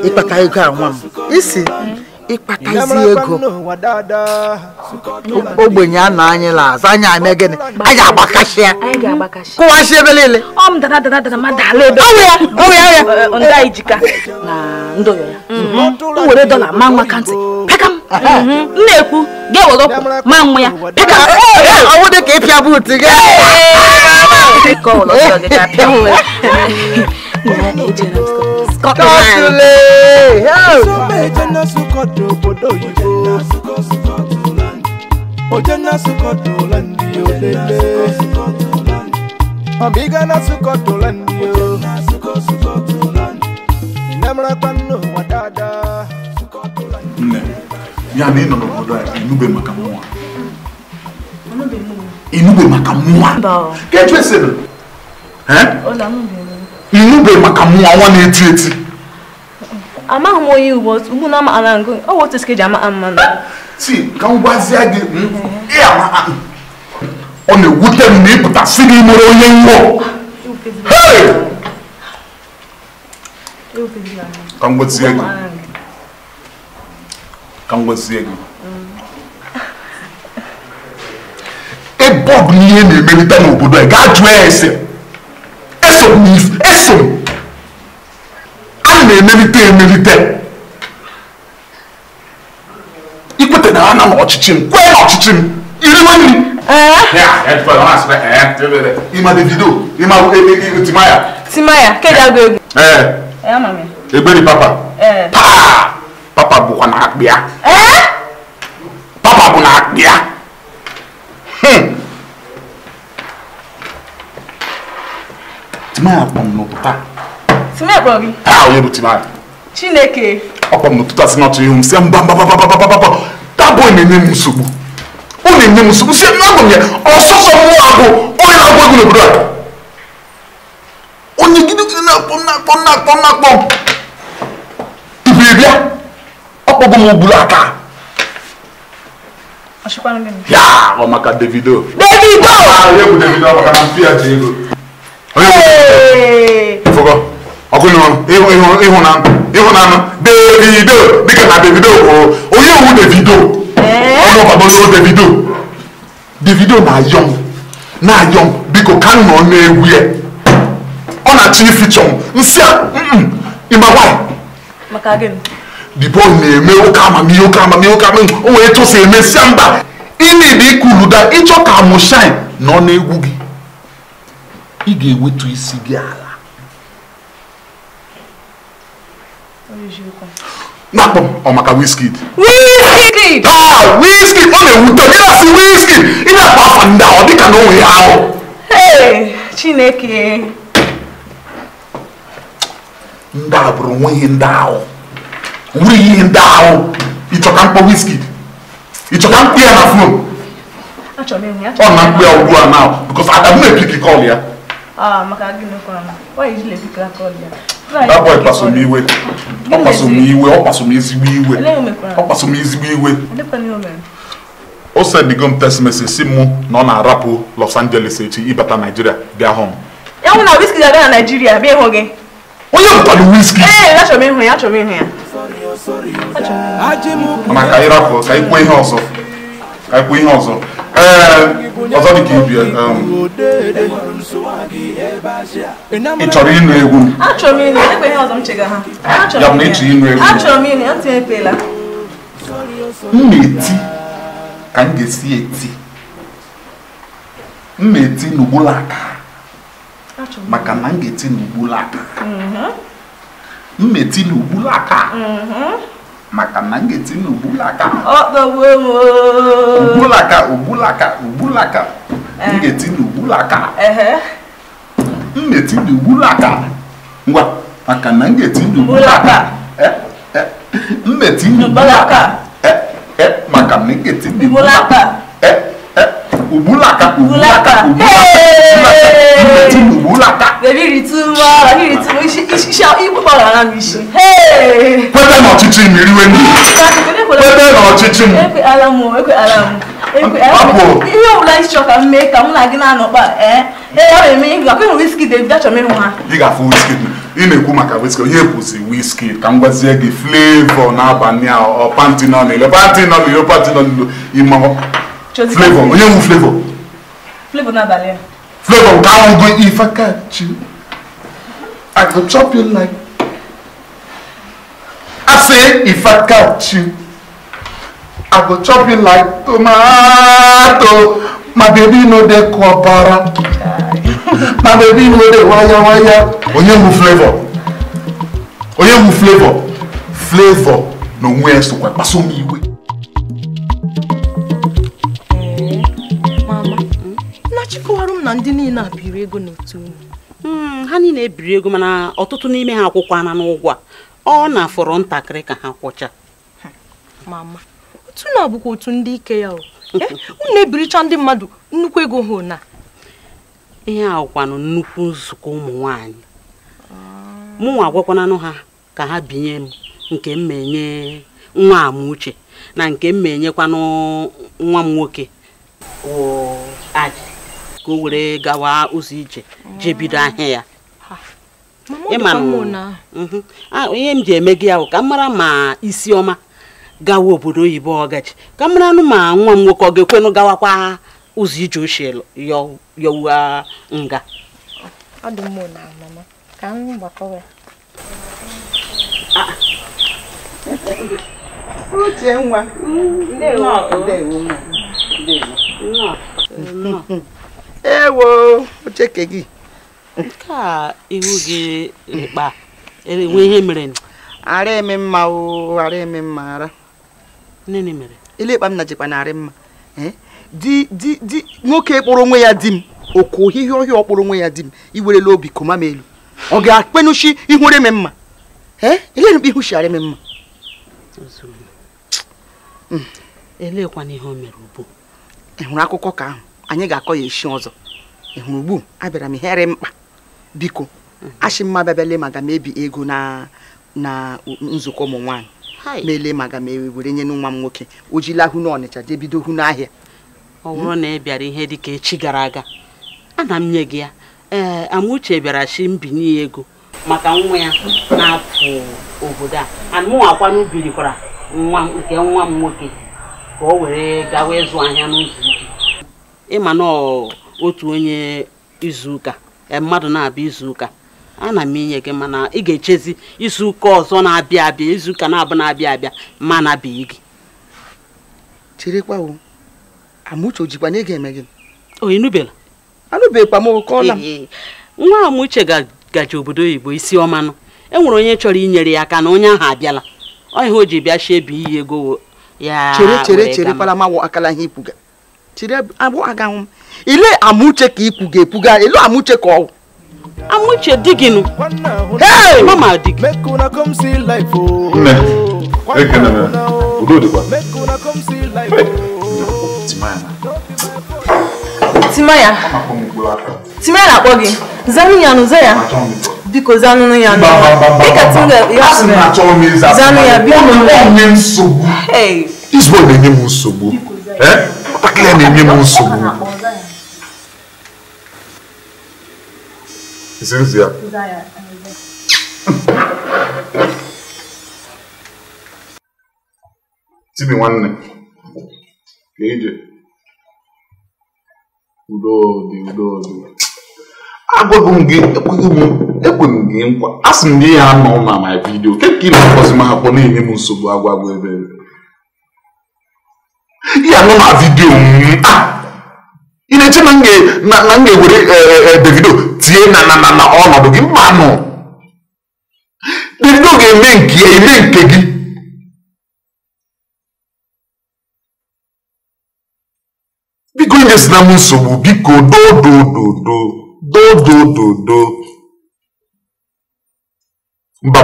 ịkpata ego a nwa m isi ịkpatazi ego ogbenye a na anyị lazụ anyị ame gịnị anyị agbakashịa kụwasị ebe niile ọ m dada dada dada ma dala ebe onwe ya onwe ya ndị anyị jika na ya were dọla ma nwa ka pekam m na-ekwu gị ewere ma nwa ya pekam ọnwụ dị ka ịpịa buutu gị Ojena bia na ịnọ n'obodo a inube maka mụnwa inube maka mụnwa kechu esere inube maka mụnwa nwa na-eti eti amaghị m onye ugbo ugbu na amaala ngụ ọ wụ otu sike ji ama mma na ti ka m gwazie gị ọ na-ewute m na ịpụta si gị mere onye ngwọ ka m gwazie gị ka ngọzi gị ebe ọ bụ na ihe na-emelite n'obodo a gaa jụọ ya ese eso m eso m a na-emelite emelite ikwete na ha na n'ọchịchị m kwee n'ọchịchị m iriwe nri ịma davido ịma e, e, e, timaya timaya kedụ agụ egwu egberi papa eh papa bukwa eh? hm. na akpịa papa bụ na akpịa timaya kpọm n'ụtụta timaya kpọm gị a onye bụ timaya chineke ọ kpọm n'ụtụta si n'ọtụ ihu m si mgbambambambambambamba tabụ na-enye m nsogbu ọ na-enye m nsogbu si ebe abụ m ya ọsọsọ mmụọ abụ onye na-agwa egwu n'obodo a onye gidi gidi na-akpọ m na-akpọ m na-akpọ m na-akpọ m kogo mu bulu aka. ya ọmaka davido. davido. Ah, ah, davido ọmaka na fi àti davido dịka na davido kwuru onye wu davido ọnụ eh? ọgbagbo davido davido na-ayọm na-ayọm biko ka m nọ n'egwu ya ọ na-achọ ifichọ m nsị a ịma nwanyị. maka gịnị dibọ na-eme ụka amami ụka amami ụka amami o wee tụsa emesịa mba ị na-ebe ikuluda ịchọ ka mụ shine nọ n'egwu gị ị ga-ewetu isi gị ala nakpọ ọ maka Wizkid Wizkid taa ah, ọ na-ewute m ịnasị Wizkid ị na-akpa afa ndị ọ dịka na onwe ya ahụ Chineke ndị a bụrụ nweghị ndị ahụ nwere ihe ndị ahụ ịchọka mkpọ wiski ịchọka mkpọ ya fon ọ na mkpọ ya ugbu a oh, now because Adam na-epiki kọl ya that boy kpaso m iwe ọ kpaso m iwe ọ kpaso m ezigbo iwe ọ kpaso m ezigbo iwe o sendigo m text message si mụ na ọ na-arapụ Los Angeles echi ịbata Nigeria bịa home onye bụtara wiski mana ka anyị rapụ ka anyị kwuo ihe ọzọ ka anyị kwuo ihe ọzọ ee ọzọ dị ka ibi um, ị chọrọ ịnụ egwu e ya bụ na ịchọ ịnụ egwu m na-eti ka m ga-esi eti m na-eti n'ugbulaka maka na m ga-eti n'ugbulaka mhm. mmeti eti n'ugbulu aka mm-hmm. maka na ngeti ga-eti n'ugbulu aka ugbulaka ugbulaka ugbulaka m ga-eti n'ugbulu aka m eh. na-eti ngwa maka na ngeti ga-eti mmeti aka m eh, eh, maka na ngeti ga Ubulaka, Ubulaka, Ubulaka, Ubulaka. Baby, it's too much. It's too much. It's shall Ihe ọbụla ịchọ ka m mee ka mụ na gị na ee ọ na-eme ihe akwa enwe wiski achọm ha ị ga-afụ wiski ị na-ekwu maka wiski onye kwụsị wiski ka m gwazie gị flavọ n'ile nọ n'ile nọ ime flavor onye wu flavor flavor n'abalị a flavor nke ahụgo ife kachi i go chop you like i say ife kachi i go chop you like tomato my baby no dey kwabara my baby no dey waya waya onye wu flavor onye wu flavor flavor n'onwe ya sokwa kpasoma igwe na ndị niile a biri ego n'otu unu hmm, ha niile ebiri ego mana ọtụtụ n'ime ha akwụkwọ ana n'ụgwọ a ọ na-afọrọ ntakịrị ka ha kwụcha mama otu na bụkwa otu ndị ike ya eh, unu ebiricha ndị mmadụ nnukwu ego ha na ihe ahụkwanụ nnukwu nzukọ ụmụ nwaanyị mụnwa agwakwananụ ha ka ha binye m nke m nwa amuche na nke m nwa m nwoke ka o were gawa ụzọ ije jee bido ahịa ya mhm. ihe m ji eme gị ahụ ka m mara ma isi ọma gawa obodo oyibo ọgachi ka m mara nụ ma nwa m nwoke ọ ga-ekwenụ gawakwa ụzọ ije ochie yọwa nga uche nwa ndewo ndewo ndewo ewo ocheke gị nke a ihu gị mkpa enwe ihe mere ara eme mma o ara eme mma ara nne mere ile ịkpa m na jikwa na mma di di di nwoke kpọrọ onwe ya di m oku ohihie ọhịa ọ onwe ya di m iwerela obi koma m elu ọ ga-akpenuchi ihure m mma ile mkpa ihu shiara m mma elekwana ihe o mere ubu ị akụkọ ka ahụ anyị ga-akọ ya esi ọzọ ị hụrụ ugbu abịara m ihere mkpa biko mhm. achị mma bịabịale maka m ebi ego na na nzukọ ụmụ nwaanyị meele maka m e were nye nwa m nwoke o hụ n'ọnịcha jee bido hụ n'ahịa ọwụrụ na ị bịara ihe dịka echi gara aga ana m nye gị ya ee amauche bịara chi mbinye ego maka nwa ya na-apụ obodo a anụnwakwanụ birikwara nwa nke nwa m nwoke ka o were gawa ịzụ ahịa n'ụzọ ịma na otu onye izuụka e, mmadụ na-abịa izuụka na m inye gị mana ị ga-echezi izuụka ọzọ na-abịa abịa izuụka na-abụ na-abịa abịa ma na-abịa gị cherekwa o amuche ojikwa na ị ga-eme gị o ịnụbela anụbekwa m okọla m nwa amuche gaji obodo oyibo isi ọmanụ enwere onye chọrọ inyere ya aka na onye ahụ abịala ọ ihe o ji bịa shie ebe iyi ego ya chere chere chere palamawo akala ihe ipuga tire abo aga ile amuche ka ikwuga ekwuga elu amuche ka ọwụ amuche di gịnụ hey mama di gị oh. nne ekene m udo dịkwa oh. timaya timaya na-akpọ gị zanụ ya nụ ya biko zanụnụ ya nụ dịka tinga ya zanụ ya biko nsogbu izbo na-enye m nsogbu ọtakịrị ya na-enye m nsogbu zirizi ya tibi nwanne ka ije udo dị udo dị agwago m gị ekweghị m ekwe m gị nkwa asị m gị ya anọ na my video. ke ka ị na-akpọzi m ha kpọ na-enye m nsogbu agwagwa ebe ihe anọ na vidio ah! ị na-eche na m ga-ewere e, e, e, Davido tie na na na ọnọdụ gị mmanụ Davido ga-eme nke ya eme nke gị biko nyesina m nsogbu biko mba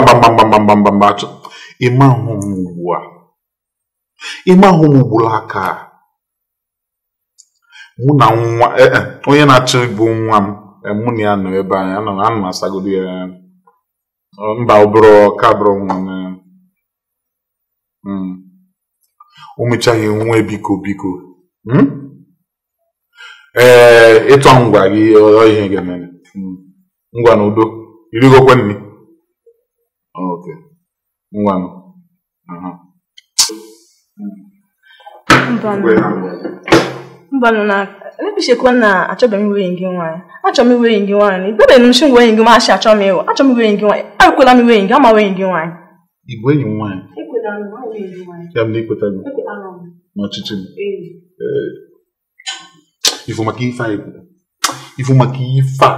mba mbambambambambambamba ịma ahụ m ugbu a ime ahụ nwụgburu aka mụ na nwa e, e, onye na-achọ ịbụ nwa m e, mụ na ya nọ ebe anyị anọ na anọ asagodo ya mba ọbụrụ ka bụrụ nwa m ụmụchaghị hmm. nwa biko biko ee ịtọ ngwa gị ihe ga-emere ngwa hmm. na udo irigokwe nri ngwa na mbanụ na ebichekwa na achọbeghị m iwe gị nwaanyị na ikpebeghị m nsi enyi gị maasị achọ m m gị nwaanyị ekwela m iwenye gị ama wenye gị nwaanyị igwe enyi nwaanyị ya na n'ọchịchị m ifu maka a ikwu ifu maka ife a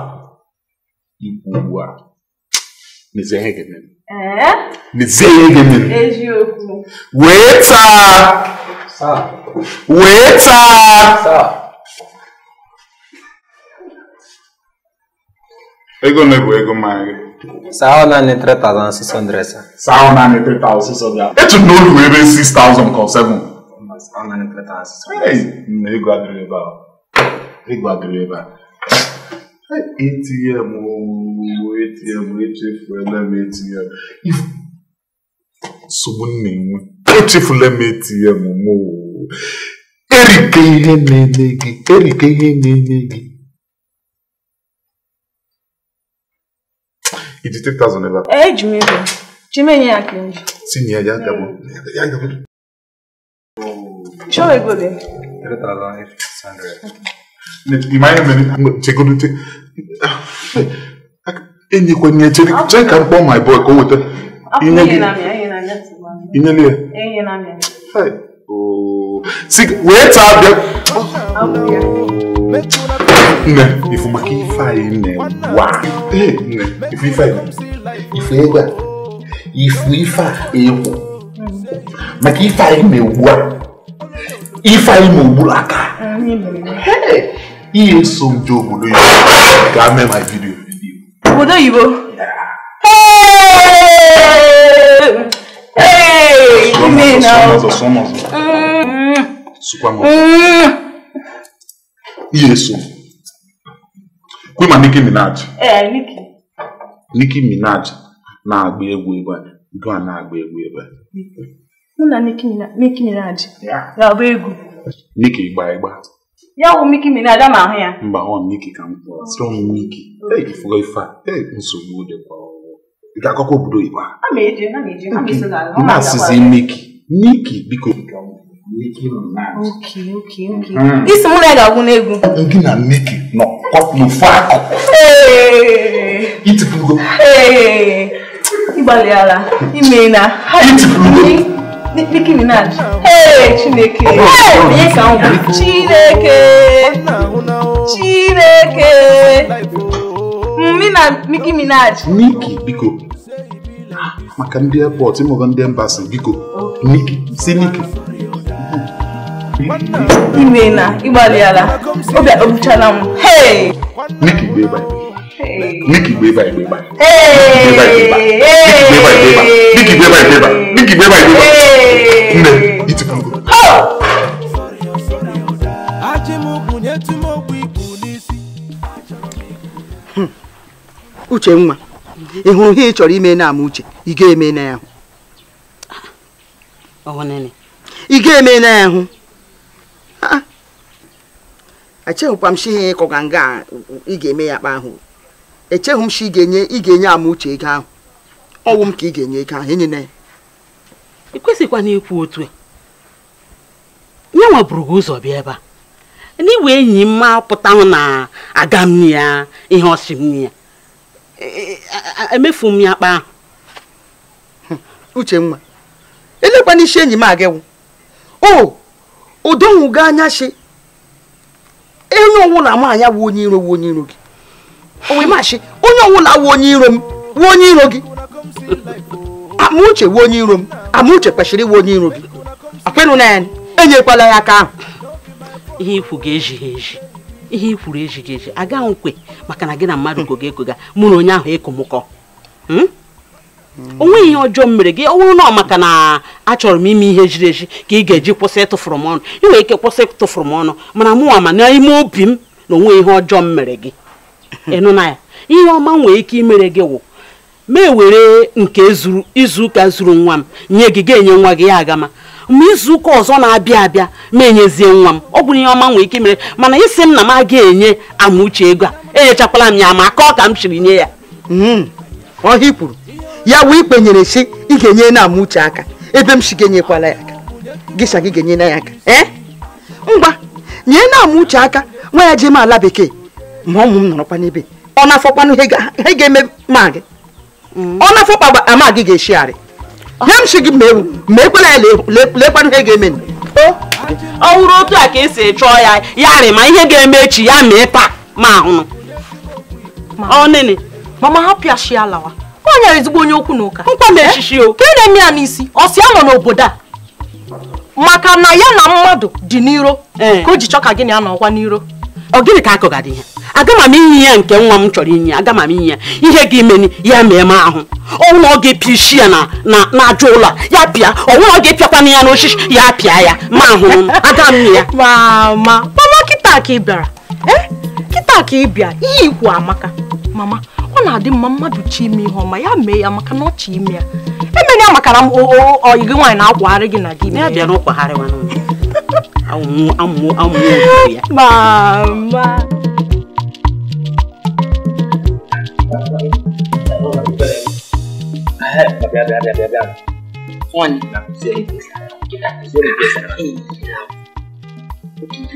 ikwu ugbu a mezie ihe ga-eme wee taa Waiter! Ego na-ebu ego mmanya gị. Saa ọ naanị 3,600 sa. Saa ọ naanị 3,600. Etu na olu wee ebe 6,000 ka 7. Saa ọ naanị 3,600. Nna ego adịrị ebe a. Ego adịrị ebe a. ATM ooo ATM echefuela m ATM. Nsogbu m na-enwe pitiful emetm m erike ihe na-eme gị erike ihe na-eme gị iji 3000 ebe a eji m ego chimenye ya ka nji tinye ya gabo ya gabo chọọ ego dị 3600 ịma ihe mere chegodute enyekwanye chere ka m kpọọ my boy ka o weta inye gị Inyelie. Enyi na mị. Hey. Oh. Si wee taa bịa. Nne, ifu maka ife anyị nne wa. Ee, nne, ifu ife anyị. Ifu ego a. Ifu ife a ekwu. Mm. Maka ife na-ewu a. Ife anyị ma ogburu aka. Ihe nso m je obodo oyibo ga mee ma vidiyo. Obodo oyibo? Hey, mimi naomba somo sukwa Nicki Minaj. Eh, Nicki. Nicki Minaj na-agba egwu ebe a. na-agba egwu ebe a. Mụ na Nicki Minaj. Ga-agba egwu. Nicki gba ịgba. Ya wụ Nicki Minaj ama ahụ ya. Mba, ọ Nicki ka m kpọrọ. Sịrọ m Nicki. Ee, ifuga ife a. Ee, kwa ị ga-akọkwa obodo Igbo a asịzi miki miki biko isi mụ na ya ga-agwụ n'egwu gị na miki nọ n'ofu akụkụ itipugo ịgbalịala ime na itipugo Nicki Minaj. Hey, Chineke. Oh, oh, hey, onye oh. ka Chineke. Chineke. Mmi na Nicki Minaj. Nicki biko. Maka ndị airport ịmụba ndị embassy biko. Nicki si Nicki. Ime na ịgbalịala obi akpọbuchala m. Nicki bụ ebe Nicki bụ ebe ebe Nicki bụ ebe ebe Nicki bụ ebe ebe Nne itikwugo. Ajị m bụ nye ikwu n'isi. Hmm. uche nwa ị hụrụ ihe ị chọrọ ime na ama uche ị ga-eme na ya hụ ị ga-eme na ya hụ echeghịkwa m shi ihe ịkọga nga ị ga-eme ya kpa ahụ echeghị m shi ị ga-enye ị ga-enye ama uche ego ahụ ọnwụ m ka ị ga-enye ego ahụ enyena ya ị kwesịkwa na ikwu otu ya nwa gị ụzọ bịa ebe a na n'iwe enyi m ma pụtanwụ na aga m ya ihe ọsị m ya emefu m ya akpa ahụ uchenwa elekwa n'isi enyi m agịwụ o udonwugo anya shi onye ọwụla na anya bụ onye iro onye iro gị onwe mashi onye ọnwụ na onye iro m wụ onye iro gị amauche wụ onye iro m amauche kwesịrị iwe onye iro gị akwenụ na enyekwala ya aka ahụ ihe ikwu ga-ejighị eji ihe i kwuru ejighị eji aga nkwe maka na gị na mmadụ gogo egoga mụ na onye ahụ ekomụkọ hmm? o nweghị ihe ọjọọ m mere gị ọ bụrụ na maka na achọrọ m ime ihe jiri eji ka ị ga-eji kwụsị ịtụfụrụ m ọnụ ị nwere ike kwụsị ịtụfụrụ m ọnụ mana mụnwa ma n'ime obi m na onwe ihe ọjọọ m mere gị ịnụ na ya ihe ọma nwere ike imere gị wụ ma ewere nke izu ụka zuru nwa m nye gị ga-enye nwa gị ya agama ma izuụka ọzọ na-abịa abịa ma enyezie nwa m ọ bụrụ ihe ọma nwee ike mere mana isi m na m aga enye Amuche ego a enyechakwala m ya ma ka ọ ka m chiri nye ya hmm. ọhị kwuru ya wee ikpenyere si ị ga-enye na Amuche aka ebe m si ga-enyekwala ya aka gịsa gị ga-enye na ya aka ee eh? ngwa nye na Amuche aka nwa ya jee m ala bekee ma ụmụ m nọrọkwa n'ebe ọ na-afọkwanụ ihe ga-eme ma gị hmm. ọ na-afọkpa ama gị ga-eshigharị nye gị ma ekwela ya lekwanụ ihe ga-eme ọ wụrụ otu a ka esi chọọ ya ya rị ma ihe ga-eme echi ya mee taa ma ahụnụ ọnene mama hapụ ya shi alawa ọ nyere ezigbo onye okwu na ụka nkwa na echichi o ka ị na-eme ya n'isi ọ si anọ n'obodo a maka na ya na mmadụ dị n'iro eh. ka o ji chọ ka gịnị anọ ọkwa n'iro ọ gịnị ka akụgadị ihe aga m inye ya nke nwa m chọrọ inye aga m inye ya ihe ga imeni ya mee m ahụ ọnwụna ọ ga-epịa isi ya na ajọ ụlọ ya pịa ọnwụna ọ ga-epịakwana ya n'osisi ya pịa ya ma ahụ aga m ya mama mama kịta ka ị bịara e? kịta ka ị bịa ihe ikwu amaka mama ọ na-adị mma mmadụ chi ime ihe ọma ya mee ya maka na ọchị ime ya emere ya makara m oyi gị nwaanyị na-akwagharị gị na gị ya bịa n'ụkwagharịwa amụmụ amụmụ ya mama sabar biar biar biar biar biar one nak suri kita suri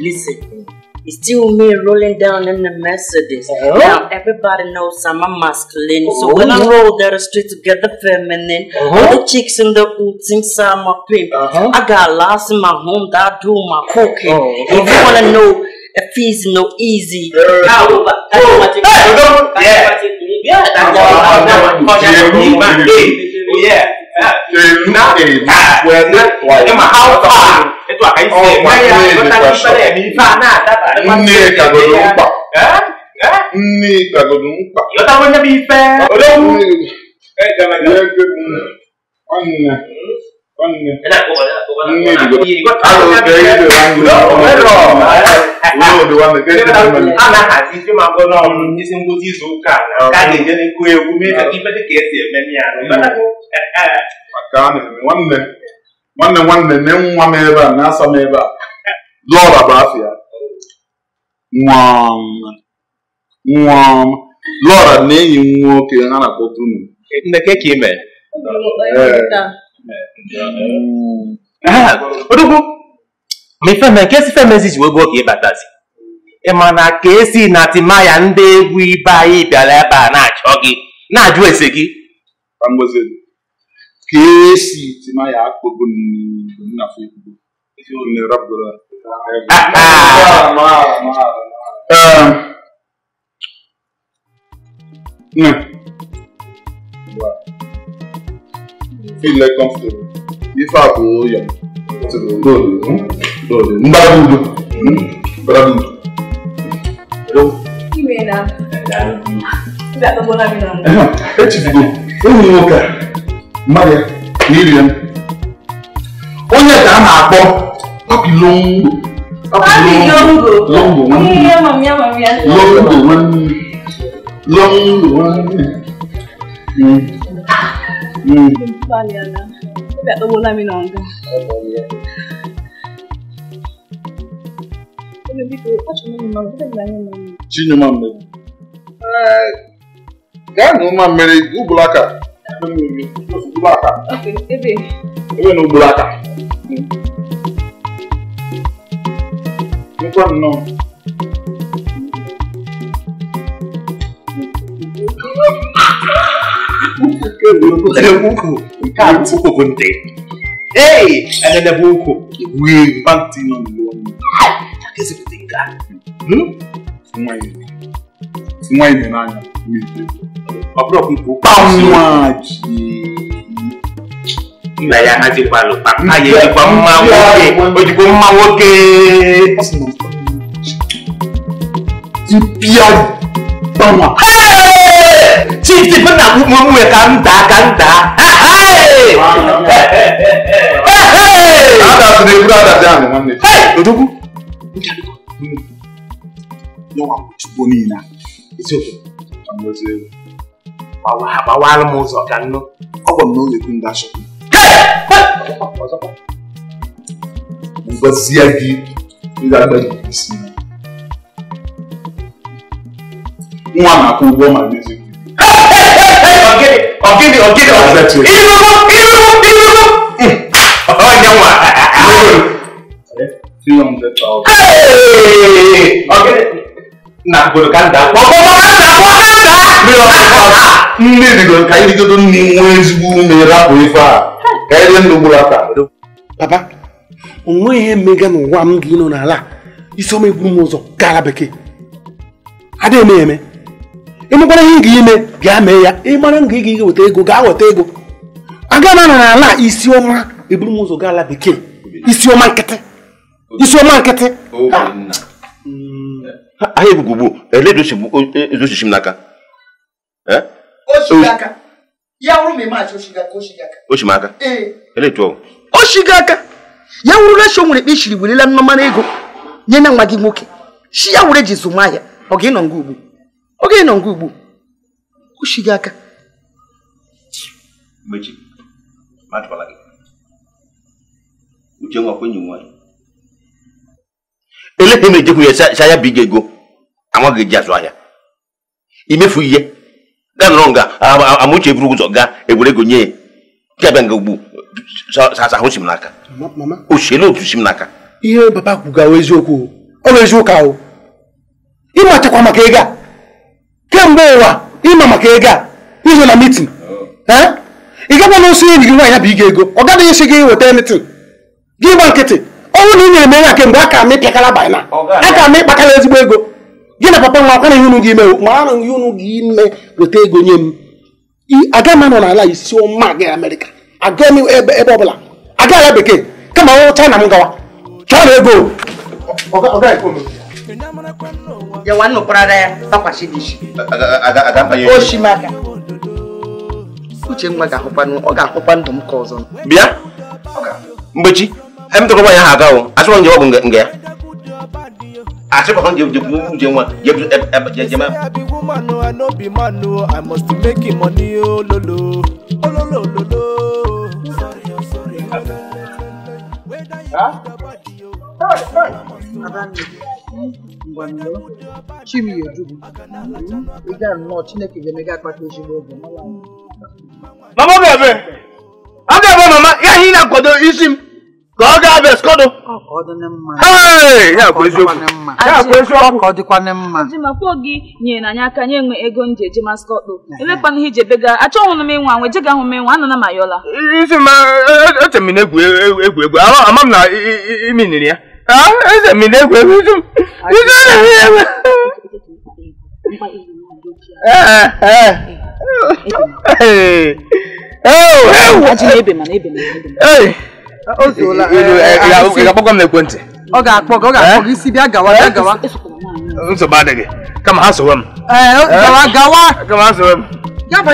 listen it's still me rolling down in the Mercedes. Uh-huh. Now everybody knows I'm a masculine, uh-huh. so when I oh. roll down the street the feminine, uh-huh. all the chicks in the hood think I'm a pimp. Uh-huh. I got lost in my home that do my cooking. Oh, if you wanna know if it's no easy, uh-huh. I will. That's what you. Yeah. Yeah, that's all. I'm not going to be Yeah. từ nó để cả quên mất tuổi mà hao tỏa cái tỏa đi phải đi phản à ta phải nó cả đồ đúng bọc nghe cả đồ đúng bọc nó ta vẫn là bị phê ở đâu cái cái này cái ừ. anh ana nwanne nwanne nne nwa m ebe a na-asa m ebe a lọra bụ afịa nwa lọra na enyi nwoke ha na odogwu ma ifeme nke esi femezi ji wee gbuo ka ịbatazi ị ma na ka esi na timaya ndị egwu ibe anyị bịara ebe a na-achọ gị na-ajụ ese gị ka esi timaya niile kọmfọtụrụ ife a bụ ya mgbagbudu mgbagbudu echibido ụmụ nwoke mmadụ na iri m onye ka a na-akpọ papilongo papilongo longo nwanne nwanne longo nwanne Balẹ̀ àná, ó bí àtọwọ́ lámì náà ń gbà. Chinua mmiri. Gaa na ụma mmiri ugboro aka. Ugboro aka. Ebe na ugboro aka. Nkwa nnọọ. Ha ha ha! Hey, another buku. We banked in on one. That is a thing that. Hmm? Fumai. Fumai ni nani? Mi. Abro kuku. Pamuaji. Ìgbà ya ká ti pa lò pa. Ayé ti pa mú máa wókè. Ojúkó mú máa wókè. Ìpìyà bá wà chief bụ na ụmụnwe ka m daa ka m daa odogwu chukwu niile gbawara m ụzọ ka nnụ ọ gwara m na oge ndị ashọpụ ngwazie gị ga-agbaji isi nwa na-akwụ ụgwọ ma n'ezigbo ọkịdị ọkịdị ọkịdị ịnụnụ ịnụnụ ịnụnụ ọnya nne rigoro ka anyị rigodo nne nwee ezigbo ume rapụ ife a ka anyị ndụ gburu aka papa ihe mmega n'ụwa m gị nọ n'ala isi m ụzọ gara bekee adịghị m eme ịmụkwara ihe ị ga-ime bịa mee ya ịmara nga ị ga ige weta ego gaa weta ego aga na ala isioma ọma eburu m ụzọ gaa ala bekee isi ọma nkịtị isi ọma nkịtị ahịa ebugugbu ele ezochichi e, m n'aka oshimaka ele tụọ oshigo aka ya wụrụ na shọ nwere ikpe ishiri werela nnọmara ego nye na nwa gị nwoke shi ya were ji zụmahịa ọ ga ịnọ nga ugbu oge nọ nke ugbu ochi gị aka uche nwa ele ka emejekwu ya sa ya bụ ige ego anwa gị ji azụ ahịa imefu ihe gaa nọrọ nga amauche buru ụzọ gaa ewere nye ya bịa nga ugbu sasa si m n'aka ochiele otu si m n'aka ihe ego a kemgbe ụwa ịma maka ego a ịzụ na mitin ị gakwa na enyi gị nwaanyị bụ iga ego ọ gaghị esi gị nweta emitin gị gba nkịtị ọnwụ na ị nyere m enye kemgbe a ka m ịpịakara banyana a ka m ịkpakara ezigbo ego gị na papa nwa akwana ihe unu gị ime mara ihe unu gị ime weta ego nye m aga m anọ n'ala isi ọma gị amerịka aga m ebe ọ bụla aga ala bekee kama ọrụ china m gawa chọọ na ego ya wanu prada takwa sidishi Ada ada mba yo oshimaka uche mma maga. hụkwa ọ ga-ahụkwa ndụ m ka ọzọ bịa mgbechi emtụrụgba ya ha aga o asụrụ nje ọgwụ jawab ya asịkwa jawab nje nwa jawab I must make money ololo ololo ololo Huh? mama ga-ebe mama ga-ebe mama ya ihe ị na-akwado isi m ka ọ ga-abịa esikọdụ ya eziokwu ọ dịkwana mma jimakwo gị nyere anyị aka nye enwe ego nje eje skọdụ elekwana ihe ijebe ga achọghị m ịnwa jega m ịnwa anana ma yọla isi ma e, e, na-egwu e, egwu ama m na ya ee ga ọ ga-akpọ gị ọ ga-akpọ isi bịa gawa gawa kama ha m gawa gawa ha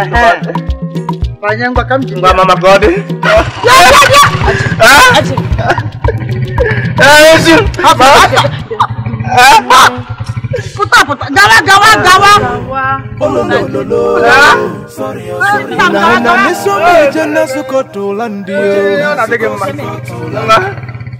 m m Panjang bakam jingga mama gode. Ya ya ya. Ah. Eh, sih. Apa? Puta puta. Gawa gawa gawa. Oh no no no. Sorry sorry. Nana misu meja nasuko tulandi. Oh, nanti gimana?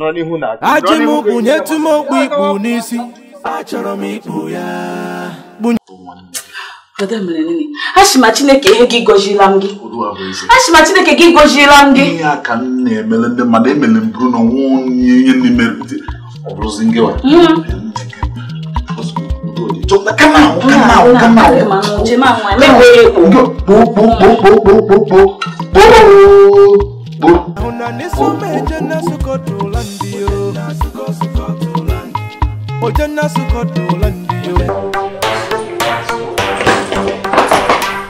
ajị m kpụnyetụ m okpu ikpu n'isi achọrọ m ikpu ya Achị ma Chineke ihe gị gọziela m gị achị ma Chineke gị m gị ihe a ka m na m na onye ihe landi yo. Ojanna sukoto landi yo.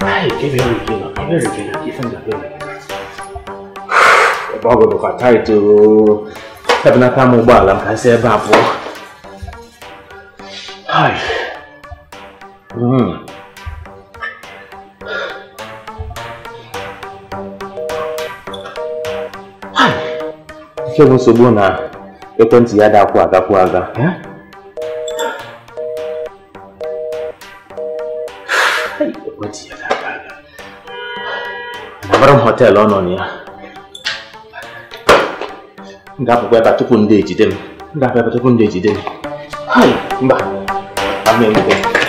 Ai, ke be ri ke na, ke be ri ke na, ke san da be. Ba go do ka tai to. Tabna ka mo ba lam ka se ba po. Ai. Mm. Enweghị nsogbu na ekwentị ya dakwụ agakwụ aga abara m ọ nọ na ya m ebe tupu ndị ejide m ebe tupu ndị ejide m mba